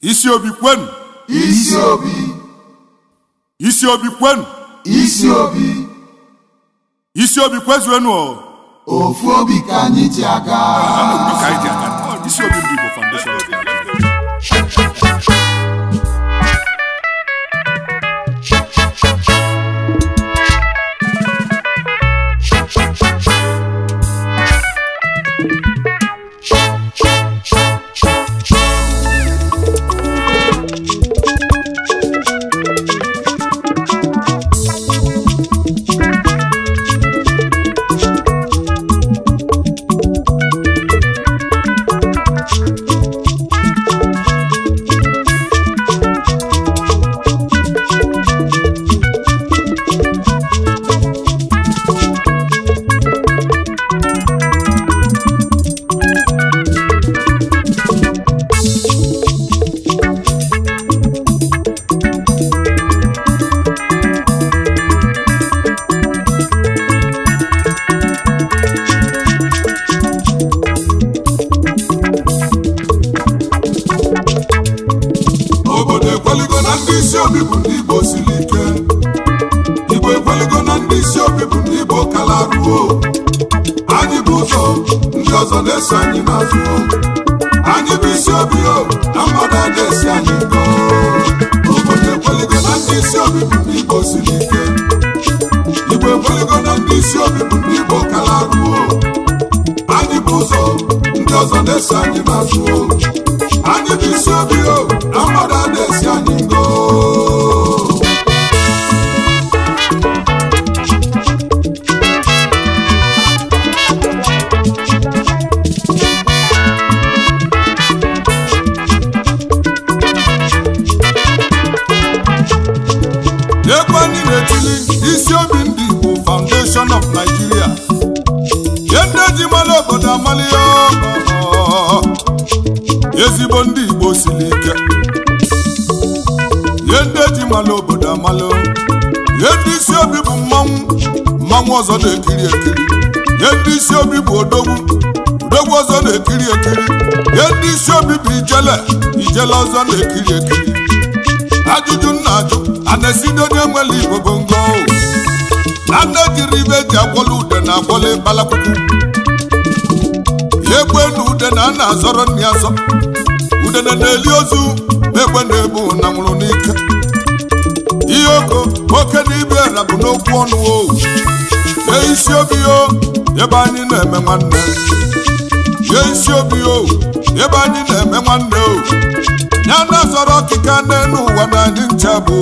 isi obi kwenu isi obi isi obi kwenu isi obi isi obi kwezuenu ofu obi ka anyị ji aga isi obi ndị Igbo foundation na anyị isi obi o na mmadụ na-esi anyị isi obi ndị Igbo foundation of Nigeria ye obodo amali ezigbo ndị Igbo siri ike ihe ndị eji mala obodo amala ihe ndị isi obi bụ mmanwụ mmanwụ ọzọ na-ekiri ekiri ihe ndị isi obi bụ odogwu odogwu ọzọ na-ekiri ekiri ihe ndị isi obi bụ ijele ijele ọzọ na-ekiri ekiri ajụjụ nna ajụ a na-esi n'onye nwere Igbo bụ ngo na nne jiri ibe eji agwọla ude na agwọla ịbalakwụkwụ ihe egbu enu ude na a na-azọrọ nri azọ udene na ozu na-ekwe na-ebu na nwụrụ n'ike ihe oko oke na ibe na bụ n'okwu ọnụ o Ye isi obi o ebe anyị na-eme nwanne Ye isi obi o ebe anyị na-eme nwanne o ya na zọrọ ọkịka n'elu ụwa na anyị ncha bụ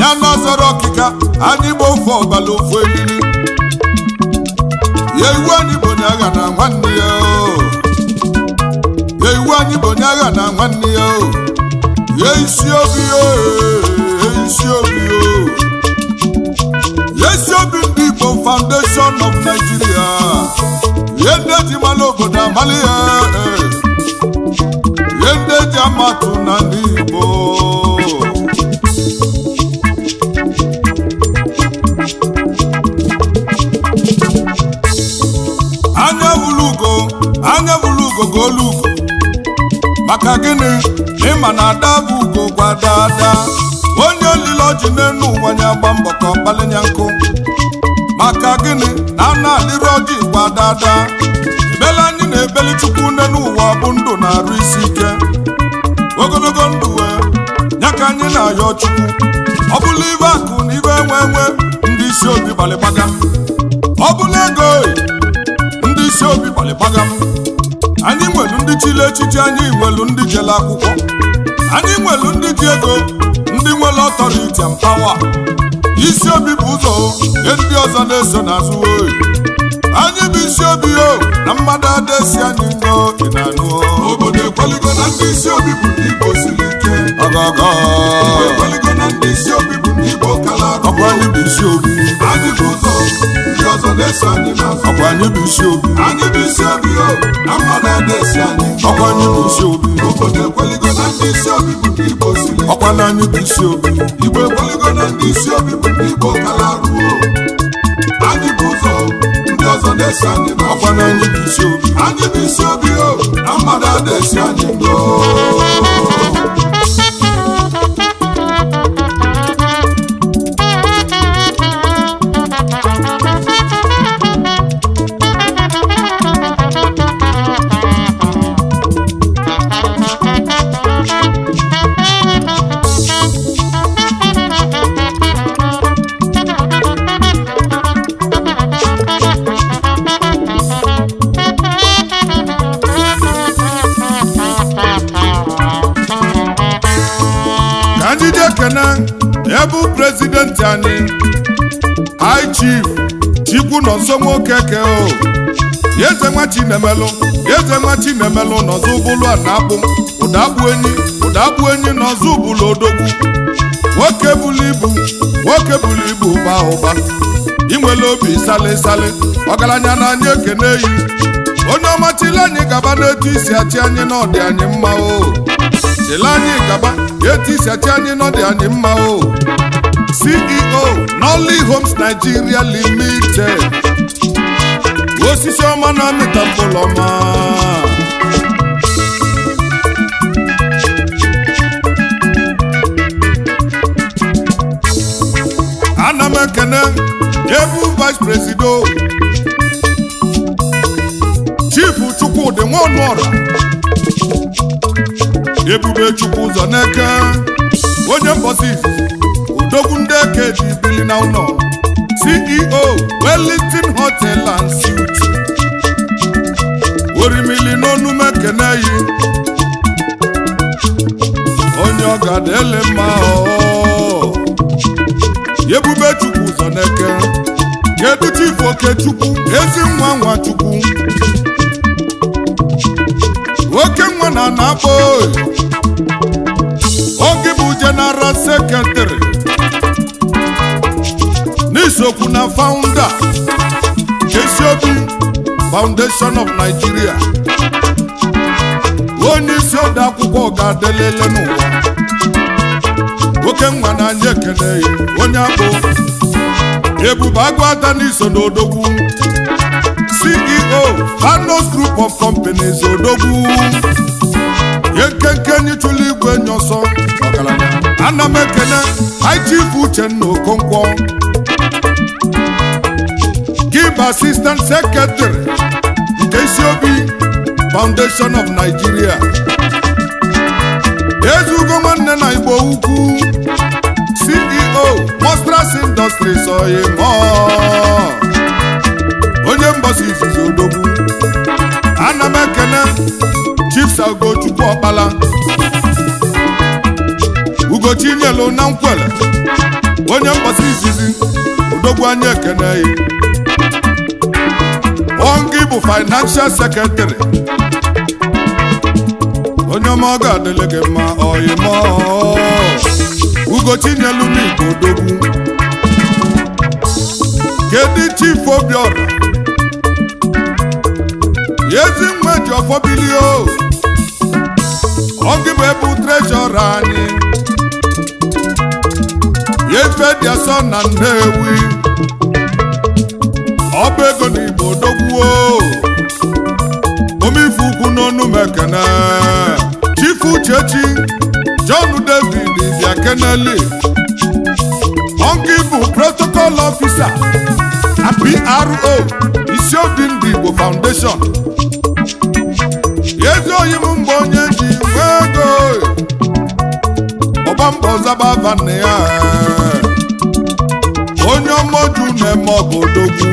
ya na zọrọ ọkịka anyị bụ ofe ọbala ofu eriri Ye iwu anyị bụ onye agha na nwanne ya o igbo anyị bụ onye agha na nwanne ya o ye isi obi isi obi isi obi ndị igbo foundation of Nigeria ye ndị eji mara obodo amala ya eh. ye ndị eji amatụ na ndị igbo anya bụrụ ugo anya bụrụ ugo ga olu ugo maka gịnị ma na ada bụ ugo gwa dada onye olile ọjị n'elu ụwa ya gba mbọ ka ọ kpalinya nkụ maka gịnị na ana na-alịrị ọjị gwa dada ebele anyị na-ebeli chukwu n'elu ụwa bụ ndụ na-arụ isi ike ogologo ndụ we ya ka anyị na-ayọ chukwu ọ bụla ibe akụ na ibe enwe enwe ndị isi obi gbalịgbaga ọ bụla ego ndị isi obi gbalịgbaga m anyị nwelu ndị chile echiche anyị nwelu ndị jele akwụkwọ anyị nwelu ndị ji ego ndị nwere ọtọriti mpawa isi obi bụ ụzọ nye ndị ọzọ na-eso n'azụ oyi anyị bụ isi obi o na mmadụ adịsi anyị ngo na-anụ obodo ndị isi obi bụ ndị Igbo siri ike ọgọgọ ekweligo na ndị isi obi bụ ndị Igbo kala ọkwa anyị bụ isi obi anyị bụ ụzọ ndị ọzọ na anyị n'azụ ọkwa anyị bụ isi obi anyị bụ isi obi o oh. na mmadụ adịsi anyị ọkwa anyị bụ isi obi obodo ekweligo na ndị isi obi bụ ndị Igbo siri ọkwa na anyị bụ isi obi Igbo ekweligo ndị isi obi bụ ndị Igbo kala ruo oh. anyị bụ ụzọ ndị ọzọ na anyị n'azụ ọkwa na anyị bụ isi obi anyị bụ isi obi oh. o ụlọ nsọ nwoke ke o eze nwa chinemelụ eze nwa chinemelụ n'ọzọ ụbụlụ a na-akpụ ụda bụ enyi ụda bụ enyi odogwu nwoke bulu ibu nwoke bulu ibu ụba ụba inwele obi sali sali ọgaranya na anyị ekene n'eyi onye ọma chili anyị gaba n'etu isi achị anyị n'ọdị anyị mma o anyị gaba etu isi achị anyị n'ọdị anyị mma o CEO Only Homes Nigeria Limited osisi ọma na amịta mkpụlọma ana m ekene ebu vice presido chifu Chukwudi Nwonuora ebube Chukwu zaneke onye mbọsi Dogunde Keji bili na ụlọ CEO Wellington Hotel and Suites orimili n'onume kene yi onye ọgada ele Yebube ebube chukwu ụzọ kedu chifu okechukwu ezi nwa nwa chukwu oke nwa na na-akpọ oge bụ jeneral sekretari sokwu na founder Jesse Obi foundation of Nigeria onye isi ode akwụkwọ ga-adelele n'ụwa nwoke nwa na anyị ekele onye abụ ebube agụata n'iso n'odogwu CEO Hanos Group of Companies Odogu. ye nkenke nyịchụla igwe nye ọsọ ọgaranya ana m ekele Uchenna bụ assistant secretary nke Isiobi Foundation of Nigeria ezugo nwanne na Igbo ukwu CEO Mostras Industries oyim onye mgbasa izizi odogwu ana m ekene Chief Ugochukwu Ọkpala Ugochinyelu na nkwele onye mgbasa izizi odogwu ekene ya financial secretary onye ọma ọ ga-adịlị gị mma ọyịmọ ugochinyelu n'igbo odogwu kedu chief obiọra ezi nwa ji Ọ gị bụ ebe trejọra anyị efe dị asọ na nnewi bụ ego n'igbo odogwuo ọnụ mekene Chief Uchechi John David Iziakeneli ọnke bụ protocol officer na PRO Isiodi Ndị Igbo Foundation ezi oyi m mgbe onye ji nwego ego mbọ zaba ya onye ọmọju na-eme ọbodogwu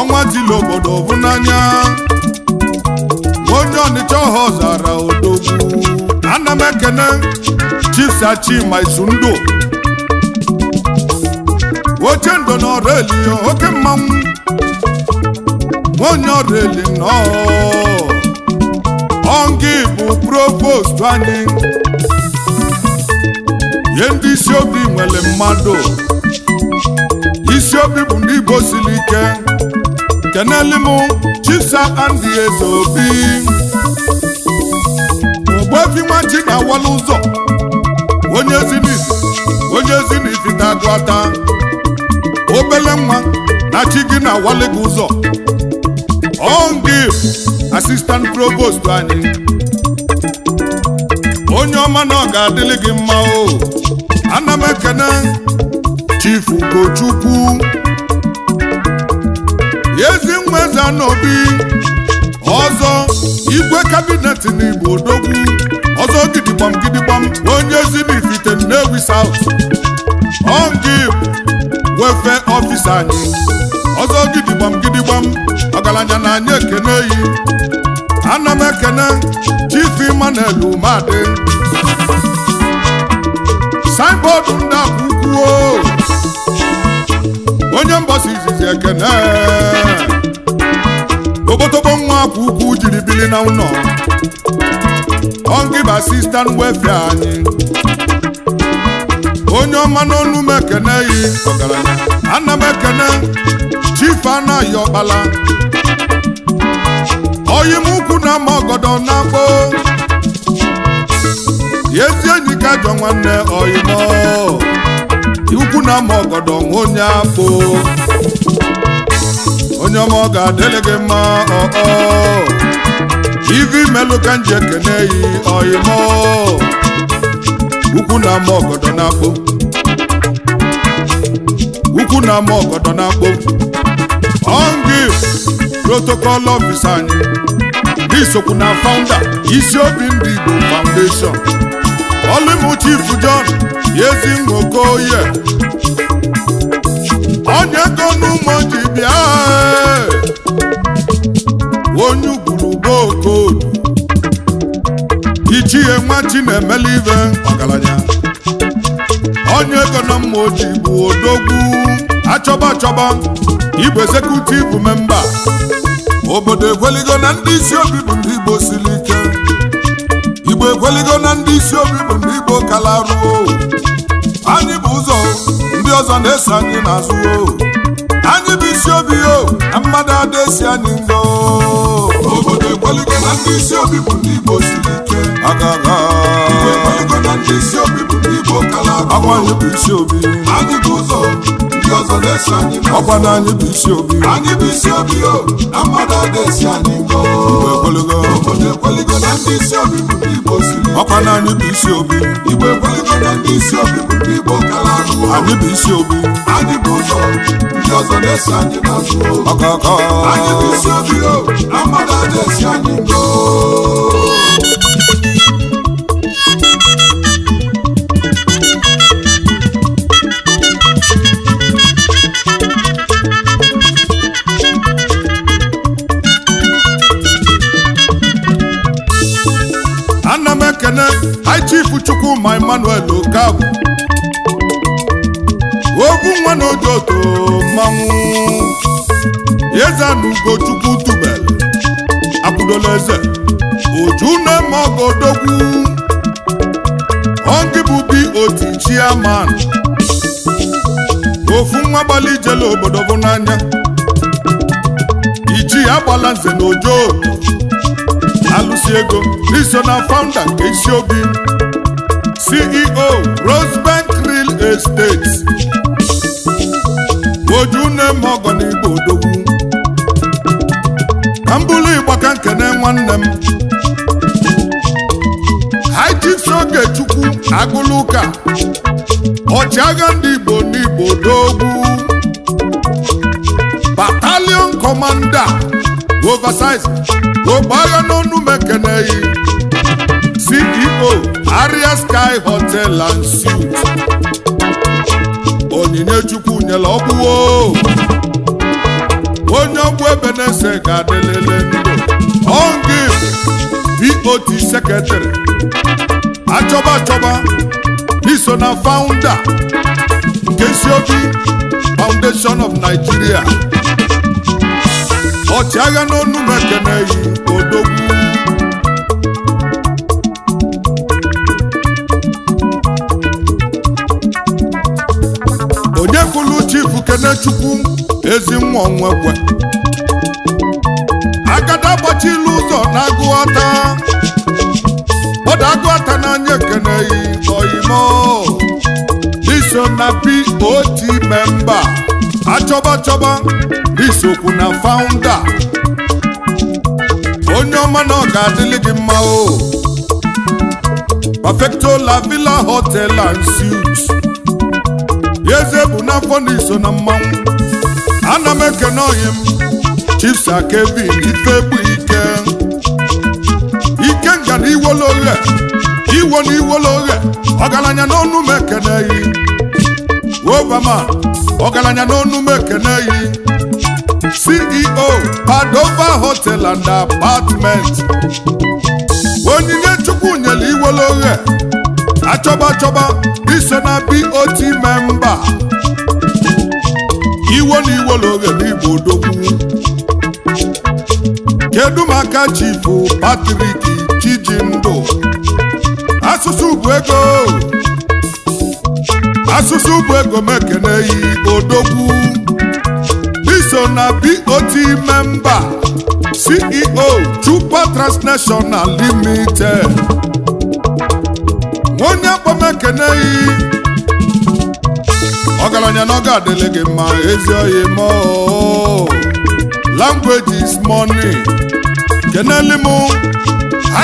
ọnwa dịla obodo bụ ọnịcha ọha ọzara odogwu ana m ekene chisachima isundu oche ndo na ọrụ eli oke mmanwụ onye ọrụ eli nnọọ ọngi bụ provost anyị ihe ndị isi obi nwere mmadụ isi obi bụ ndị igbo ike keneli m chisa andị ezeobi ofi nwa ji na ụzọ onye zinifi onye zinifi tago ata obele nwa na chi gị na awali gị ụzọ ongi asistant provost anyị onye ọma na ọ ga-adịlị gị mma o ana m ekene chief ugochukwu ezi nwa eze igwe kabinet n'Igbo odogwu ọzọ gidigbam gidigbam onye zimifite nnewi n'Ewi South wefe ofisa anyị ọzọ gidigbam gidigbam ọgaranya na anyị ekene yi ana m ekene Chief Emmanuel Umeadị signboard ndị onye mbọsi izizi ekene tobotobo nwa kwa ugwu jiri bili na ụlọ ọngiba wefe anyị onye ọma n'ọnụ m ekene yi ọgaranya ana m ekene chief anaghị ọkpala oyi m ukwu na ama ọgọdọ na mbụ, ezi enyi ka jọ nwanne oyi m na ama ọgọdọ nwa onye afọ onye ọma ọ ga-adịlị gị mma ọọ ivi melụ ka nji ekene yi ọyịmọ ukwu na ama ọgọdọ na ukwu na ama ọgọdọ na-akpọ ọngị protokọl ọfis anyị n'isokwu na faụnda isi obi ndị Igbo foundation olimu chief John yezi nwokoye onye ego bịa onye ugwuru gbokodu ichie nwa chinemela ibe ọgaranya onye ego na mma oji bụ odogwu achọba achọba igbo ezekutiv memba obodo ekweligo na ndị isi obi bụ ndị igbo siri ike igbo ekweligo na ndị isi obi bụ ndị igbo kalaruo anyị bụ ụzọ ndị ọzọ na-eso anyị n'azụ isi obi o na mmadụ adesi an'ilo obodo ekwelike na ndị isi obi bụ ndị Igbo siri ike agara igbo ekwelike na ndị isi obi bụ ndị Igbo kalaba agwa ya bụ isi obi anyị ụzọ obi ọzọ na-esi anyị mma ọkwa na anyị bụ isi obi anyị bụ isi obi o na mmadụ ọ na-esi anyị mma obodo ekweligo na ndị isi obi bụ ndị Igbo siri ọkwa na anyị bụ isi obi Igbo ekweligo na ndị isi obi bụ ndị Igbo kara ahụ anyị bụ isi obi anyị bụ ụzọ ndị ọzọ na-esi anyị n'azụ ọkọkọ anyị bụ isi obi o na mmadụ ọ na-esi anyị mma chifu chukwuma emmanuel okabụ obu nwa na ojoto mmanwụ Chukwu ugochukwu tubelu akwụdola eze oju na-eme ọgụ odogwu bụ bi otu chiaman ofu nwa gbali ijele obodo bụ n'anya iji agbala nze na ojoo. alụsi ego iso na founder nke isi obi CEO Rosebank Real Estate ojune m ọgọnigbo odogwu ka mbụlụ ka nkene nwanne m High Chief Ogechukwu agụlụka ọchịagha ndị Igbo n'Igbo odogwu Battalion Commander oversize ogbe agha n'ọnụ m CEO Aria Sky Hotel and Suites onyinye chukwu nyela ọgwụwo onye ọgwụ ebe ga-adịlele ndụ ọngib BOT Secretary achọba achọba iso na Founder nke siobi foundation of Nigeria ọchịagha n'onu ekene yi odogwu Kenechukwu ezi nwa onwekwe agada gbachila ụzọ na agụata ọda agụata n'anya ekeneghị oyimo iso na pot memba achọba chọba isokwu na faụnda onye ọma na ọ ga-adịlị gị mma o perfecto la villa hotel and suites ya eze bụ n'afọ na iso na mmanwụ ana m ekene ọhịa m chips kevin ife bụ ike ike nga na iwolo oghe iwo na iwolo ọgaranya n'ọnụ m ekeneghị ọgaranya n'ọnụ m ceo padova hotel and apartment onyinye chukwu nyere iwolo achọba achọba iso na BOT memba iwo na lori n'igbo odogwu kedu maka chifu Patrik Chijindu, asụsụ bụ ego asụsụ bụ ego mekeneyi odogwu iso na BOT memba CEO Chupa Transnational Limited onye akpọm ekeneghị ọgaranya na ọga adịle gị mma ezi oyi mọọ language is money keneli m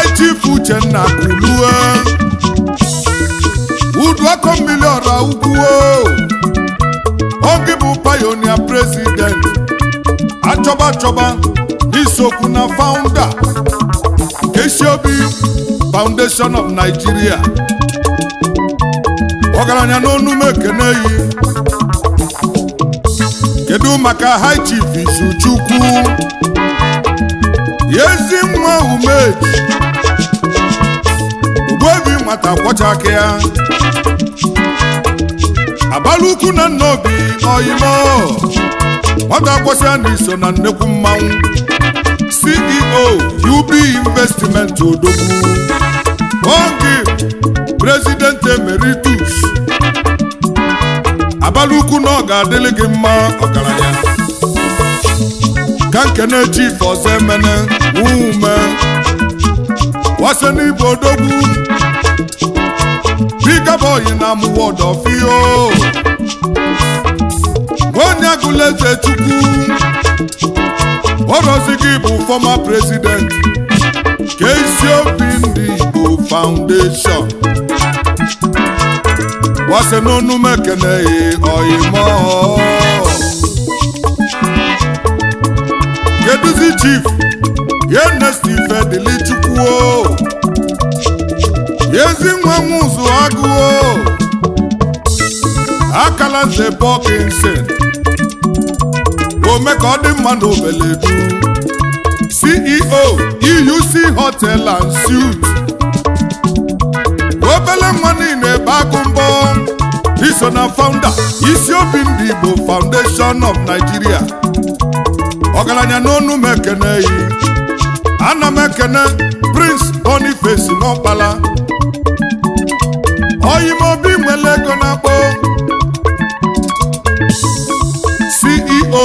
ichief Uchenna kulue udu akọ mmiri ọra ukwuo oge bụ pionia president achọba achọba n'isokwu na founder Kesiobi foundation of Nigeria ọgaranya n'onu m yi kedu maka high chief Izuchukwu ezi nwa umeji ugbobi nwata kwọcha aka ya abalị ukwu na nna obi oyimo nwata kwọsịa na eso na nnekwu mmanwụ CEO UB Investment odogwu oge prezident emeritus abalị ukwu na ga-adịlị gị mma ọgaranya ka nkene chief ọzọ emene wume wase n'ibe odogwu bikaboyi na amụwa ọdọfio onye agụla eze chukwu orozi gị bụ fọma prezident KCOB ndị Igbo Foundation gbase n'onu m e oyi oyimo keduzi chief yenestife ooo. yezi nwa nwụzụ ooo. akala nze bọkinsin ome ka ọ dị mma na ceo euc hotel and suit obele nwa niile ebe akụ mbọ iso na founder isi obi ndị Igbo Foundation of Nigeria ọgaranya n'ọnụ m ekene yi ana m ekene Prince Boniface Nwokpala oyime obi nwere ego CEO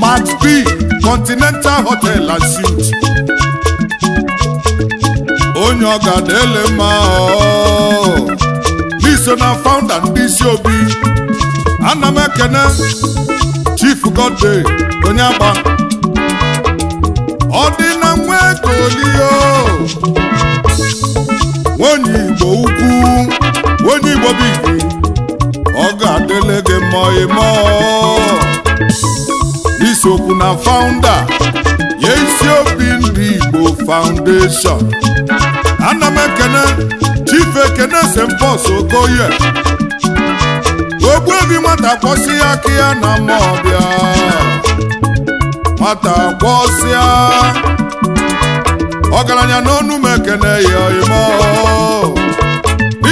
Max B Continental Hotel and onye ọga na-ele mma n'iso oh. na founder ndị isi obi ana m ekene chief Godday onye agba ọ dị na nwa kolio oh. igbo ukwu nwenye igbo bigi ọ ga-adịle gị mma ịmọ isiokwu oh. na founder ya isi obi ndị Igbo Foundation ana m ekene Chief Ekene Sempos Okoye ogbuebi nwata kwọsị ya aka ya na mma ọbịa nwata kwọsịa ọgaranya n'ọnụ m ekene ya imo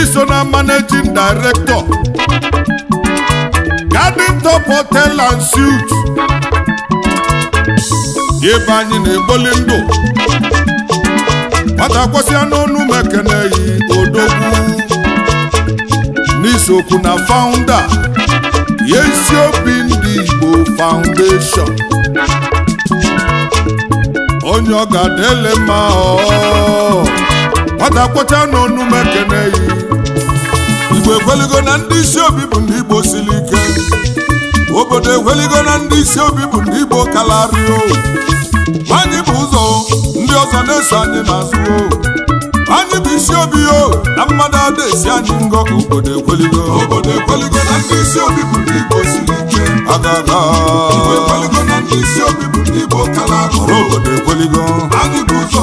iso na managing director Garden Top ebe anyị na-egboli ndụ n'onu kwasịa n'ọnụ mekeneyi odogwu n'isokwu na faụnda ya isi obi ndị Igbo faụndeshọn onye ọ ga-adịle mma nwata kwachaa n'ọnụ mekeneyi Igbo ekweligo na ndị isi obi bụ ndị Igbo siri ike obodo ekweligo na ndị isi obi bụ ndị Igbo kalario anyị bụ ụzọ ndị ọzọ na-eso anyị n'azụ anyị bụ isi obi o na mmadụ ada esi anyị ngọ obodo ekweligo obodo ekweligo na ndị isi obi bụ ndị Igbo siri ike agada ekweligo na ndị isi obi bụ ndị Igbo kalario obodo ekweligo anyị bụ ụzọ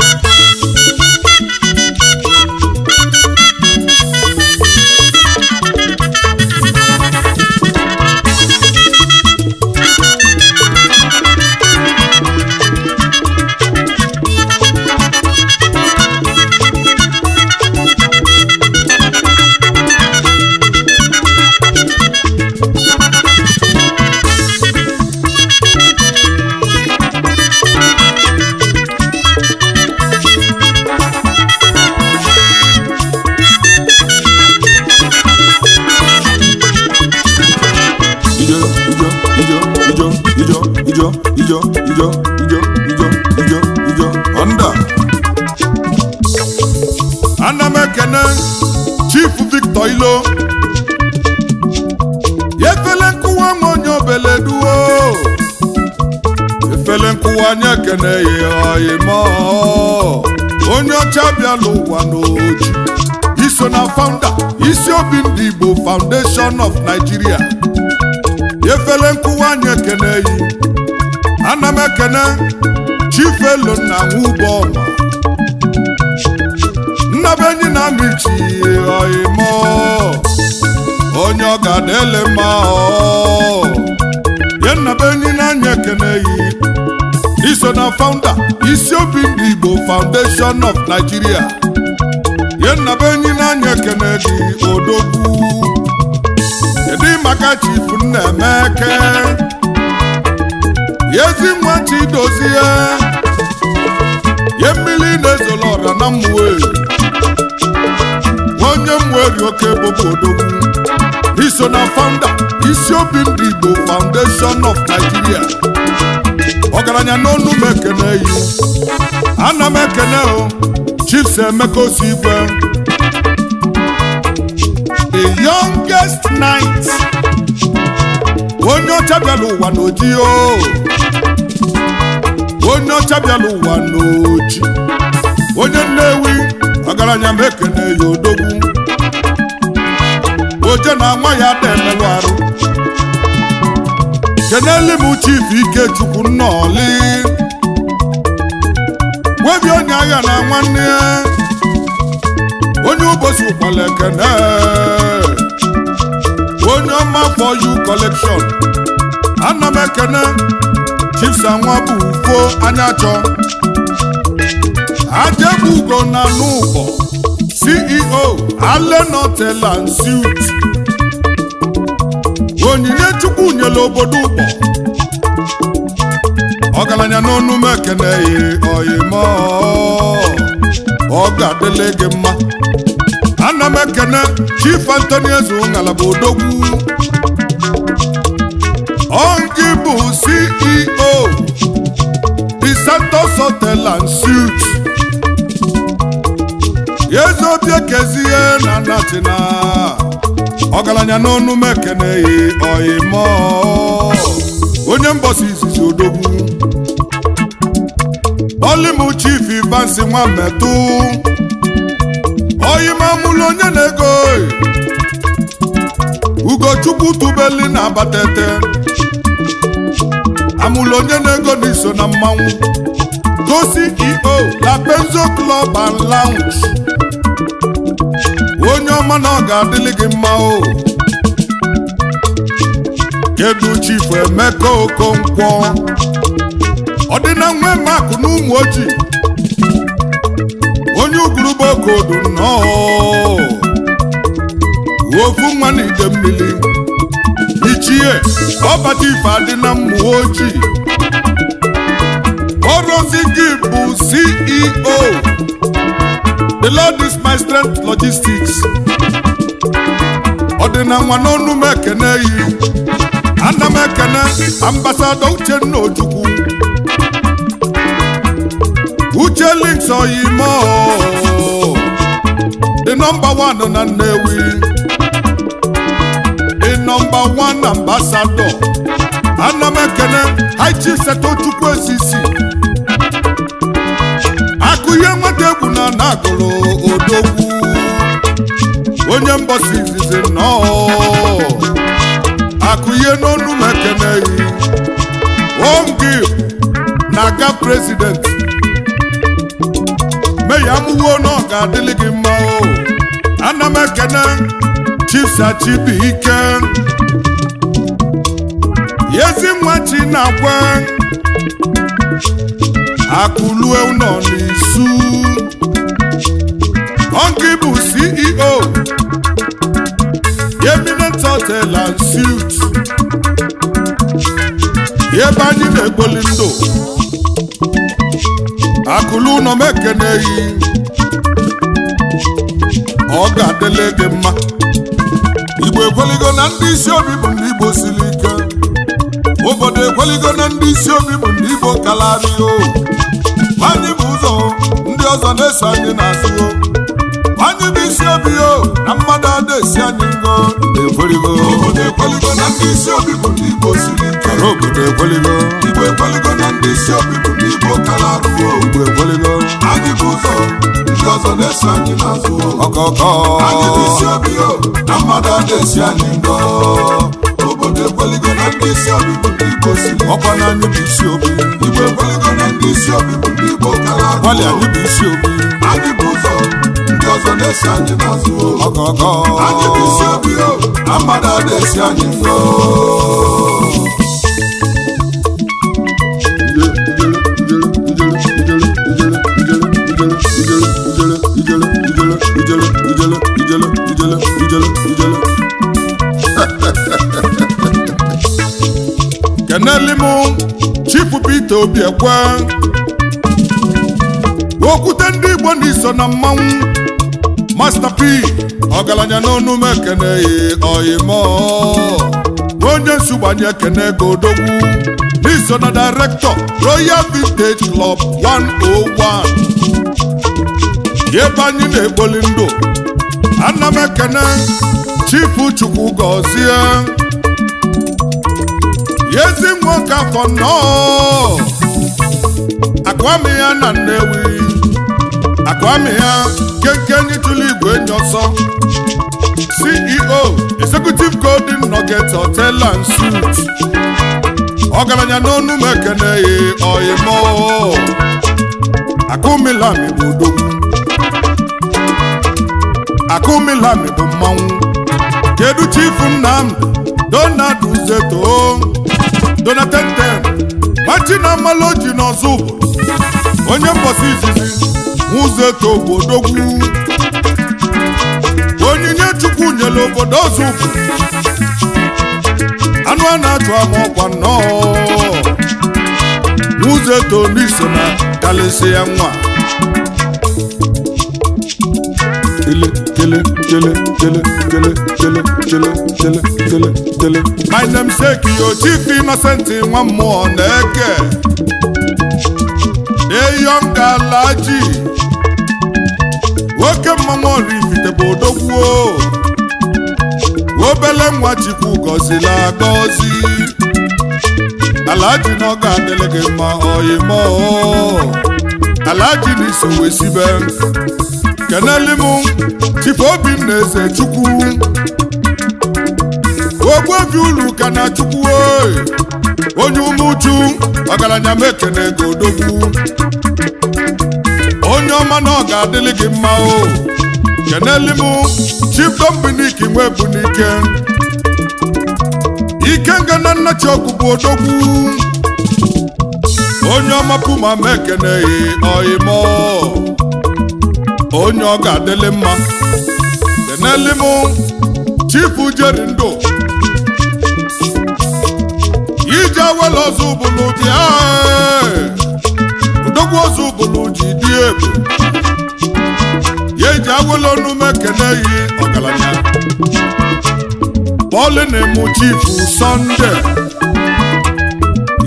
ijo ijo ijo ijo ijo onda ana m ekene chief victor ilo efele nkụwa m onye obeleduo efele nkụwa anyị ekene ya ime onye ọcha bịala ụwa n'oji iso na founder isi obi ndị igbo foundation of nigeria efele nkụwa anyị ekene ya emekene chifelo na nwụbọma nnabenyi na michi oimo onye ọgadele ma ya nnabenyi na-anya ekene yi iso na founder isi obi ndị Igbo Foundation of Nigeria ya nnabenyi na-anya ekene dị odogwu kedu maka chifu Nnaemeke ezi nwa Chidozie ye mmiri na-ezola ọra na mmụọ onye mweri oke bụ odogwu iso na founder isi obi ndị Igbo Foundation of Nigeria ọgaranya n'ọnụ m ekene yi ana m ekene o Chiefs Emeka Osigwe the youngest knight onye ọcha bịala ụwa n'oji o onye ọcha bịala ụwa n'oji onye nnewi ọgaranya m na-eyi odogwu oje na nwa ya ada emelụ arụ keneli m ike ikechukwu nnọọlị nwebi onye agha na nwanne onye ụbọchị ụkpala ekene Mama for you collection ana m ekene chiefs anwa bụ ufo anya chọ ajebugo na n'ụbọ CEO alenotela onyinye chukwu nyere obodo ụbọ n'Onu n'ọnụ m ekene oyimo ọ ga-adịla gị mma ana m ekene chief Anthony Eze ngalaba odogwu Ongi bụ CEO Santos Hotel and Suites Yezobi ekezie na natina ọgaranya n'ọnụ m ekeneghị ọyịmọ onye mbọsi izizi odogwu olimu chief Ivansi Nwametụ oyimamụlụ onye na-ego Ugochukwu tubeli na abatete amụlụ onye na-ego n'iso na mmanwụ gosi ceo na Benzo Club and onye ọma na ọ ga-adịlị gị mma o kedu chifu Emeka Okonkwo ọ dị na nwe makụ na ụmụ ojii onye uguruba okodo nnọọ ofu nwa na ide mmiri ichie ọbata ife adị na mmụọ ojii ọrụzi gị bụ CEO the Lord is my strength logistics ọdịna nwa n'ọnụ m ekene yi ana m ekene ambasada Uchenna Ojukwu Uche links oyimo the number one na Nnewi nọmba na ambasadọ ana m ekele haịchi setochukwu osisi akụ nweta egwu na na-agụrụ odogwu onye mbọsi izizi nnọọ akụ ihe n'ọnụ m ekeneghị ongi na-aga prezident meya mụwo na ọ ga-adịlị gị mma o ana m ekene Yezi ezinwa chinakwe akụlue ụlọ n'izu ọnkị bụ CEO eminent hotel and suit ebe anyị na-egboli ndụ akụlụ ụlọ m ọ ga-adịla mma igbo ekweligo na ndị isi obi bụ ndị igbo siri ike obodo ekweligo na ndị isi obi bụ ndị Igbo kalarịo anyị bụ ụzọ ndị ọzọ na-eso anyị n'azụ anyị bụ isi obi o na mmadụ ada esi anyị ngo obodo ekweligo na ndị isi bụ ndị Igbo siri obodo ekweligo Igbo ekweligo na ndị isi obi bụ ndị Igbo kalarịo Igbo ekweligo anyị bụ ụzọ ndị ọzọ na-eso anyị n'azụ ọkọkọ anyị bụ isi obi o na mmadụ ada esi anyị ngo ekweligo na ndị isi obi bụ ndị Igbo si ọkwa na anyị bụ isi obi Igbo ekweligo na ndị isi obi bụ ndị Igbo kala agwali anyị isi obi anyị bụ ụzọ ndị ọzọ na-esi anyị n'azụ ọgọgọ anyị bụ isi obi o na mmadụ a na-esi anyị mfe Ijele, ijele, ijele, ijele, ijele, ijele, ijele, Kenelimu, m chifu Peter Obi ekwe okwute ndị Igbo na iso na mmanwụ Master P ọgaranya n'ọnụ m ekeneghị oyimo onye nsugbanye ekene Kene odogwu n'iso na direktọ Royal Vintage Club 101 ebe anyị na-ekpoli ndụ ana m ekene chifu Chukwu yezi nwoke afọ nnọọ akụami ya na Nnewi akụami ya kenkenye tụlụ igwe nye ọsọ CEO Executive Golden Nugget Hotel and suit ọgaranya n'ọnụ m ekeneghi oyimo akụmilami bụ odogwu akụmilami bụ mmanwụ kedu chifu Nnamdi Donald Uzeto na machina oji na ọzọ onye mbọsị izizi ụzọ eto obodogwu onyinye chukwu nyere obodo ọzọ anụ a na-achụ ama ọkwa nnọọ ụzọ eto n'iso na kalịsị ya nwa jele jele jele jele jele jele jele jele my name say Kiyoji innocent nwa mmụọ na-eke deyonga nwoke mmanwụ Oraifite bụ odogwuo obele nwa chikwu gọzila agọzi alaji na ọ ga-adịlị gị mma oyimo alaji na iso wesibe keneli m ife obi m na eze chukwu ogbuobi ulu ka na chukwu onye ume uju ọgaranya m ekene gị odogwu onye ọma na ọ ga-adịlị gị mma o keneli m chiptombiniki nwe bụ n'ike ike nga na nnachi bụ odogwu onye ọma puma m ekene ọyịmọ onye ọ ga-adịlị mma deneli m chifu jeri ndụ ije wele ọzọ ụbụlụ dị udogwu ọzọ ụbụlụ ji dị ebu ya eji ọnụme kene yi ọgaranya bọọlụ na-emu chifu sọnde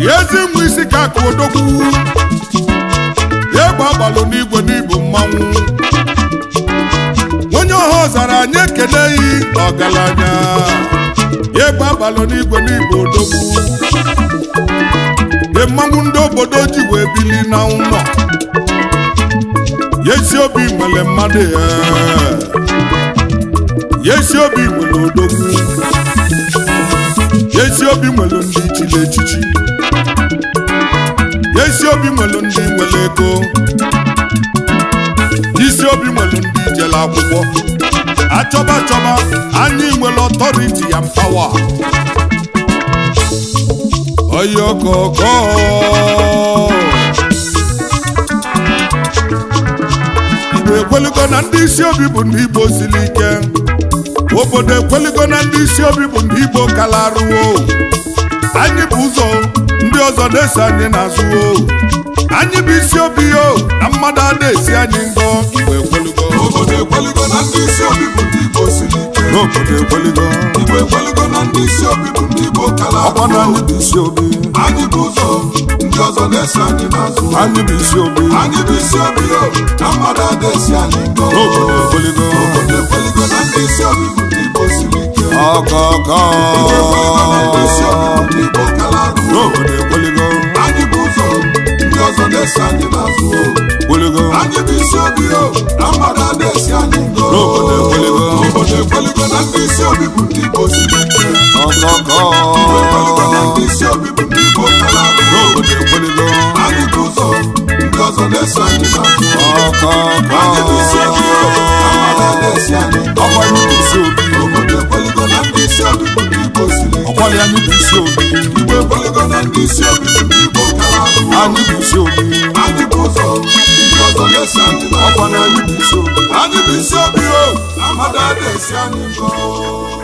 ya ezi mụ isi ka aka odogwu ya egbe agbalụ n'igwe n'ibu mmanwụ ọ zara anyị ekeleghị ọgaranya egbe agbalụ n'igwe n'igbo odogwu de mmanwụ ndị obodo ji wee bili na ụlọ yesi obi nwere mmadụ ya yesi obi nwere odogwu yesi obi nwere ndị ichiri echichi yesi obi nwere ndị nwere ego isi obi nwere ndị jere akwụkwọ achọba achọba anyị nwere ọtọriti ya pawa oyokoko igbo ekweligo na ndị isi obi bụ ndị igbo siri ike obodo ekweligo na ndị isi obi bụ ndị igbo kalaruo anyị bụ ụzọ ndị ọzọ na-eso anyị n'azụ anyị bụ isi obi o na mmadụ a na-esi anyị ngọ ekweligo ndị bụ ndị n'obodo ekweligo na ndị isi obi bụ ndị Igbo kala ọkwa na anyị bụ isi obi anyị bụ ụzọ ndị ọzọ na-esi anyị n'azụ anyị bụ isi obi anyị bụ isi obi na mmadụ ada-esi anyị ngo n'obodo ekweligo ekweligo na ndị isi obi bụ ndị Igbo siri ike ọzọ na-esi anyị n'azụ anyị bụ isi obi o na mmadụ a na-esi anyị ngo na ndị isi obi bụ ndị Igbo si ekweligo na ndị isi anyị bụ isi obi na ndị isi ahụ bụ isi obi bụ ndị ọzọ o na-esi anyị